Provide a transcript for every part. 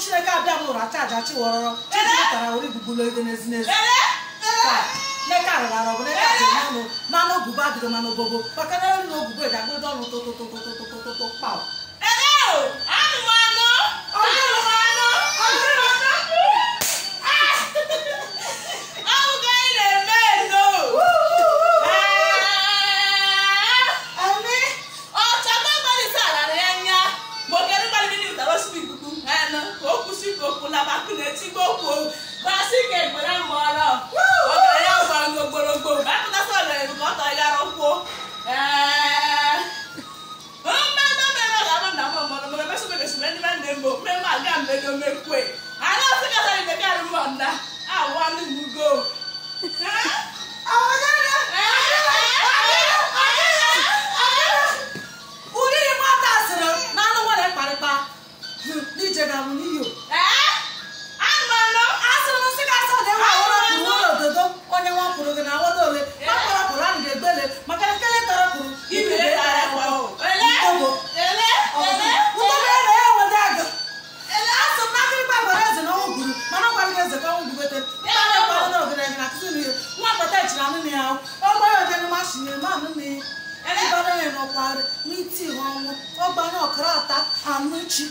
chineke abịa mụrụ acha aja chiwọrọrọ chijitara ori gbugbulu ego n'ezi n'ezi neka rụrara ọbụ neka dị n'ọnụ manụ ogugo adịghị manụ ogogo maka na elu na ogugo ga-agbado ọnụ tụtụtụtụtụtụtụ kpaụ usigokwu labakunetigokwu basike gbere mụọrọ ọgara ya gbọrọ gborogbo mgbe apụtasa ọgara bụ ka ọ tọọ ya rụkwuo mmemme mmemme ga-ama na mụ mmadụ mmemme sọ mmemme sọ mmemme ndị mmemme mbụ mmemme aga mmemme omekwe gogo na awodo ole makara kuran de gbele makara kele tara kuru ibi le ara kwa o ele ele ele ya aga ele aso makiri pa gbara eze na ogun guru mana kwa eze ka ogun bete ya na kwa na ogun na kisu ni nwa pata ichira nu ni awo o gba yo jenu ma shi ni ma nu ni ele ba na no kwa ni ti ọgba na okra ata anuchi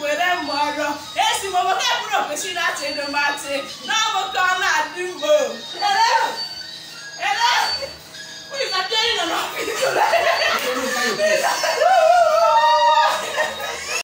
were mgbe ọrụ esi m obodo eburu ofesi na-atị elu matị na ọbụka ọ na-adị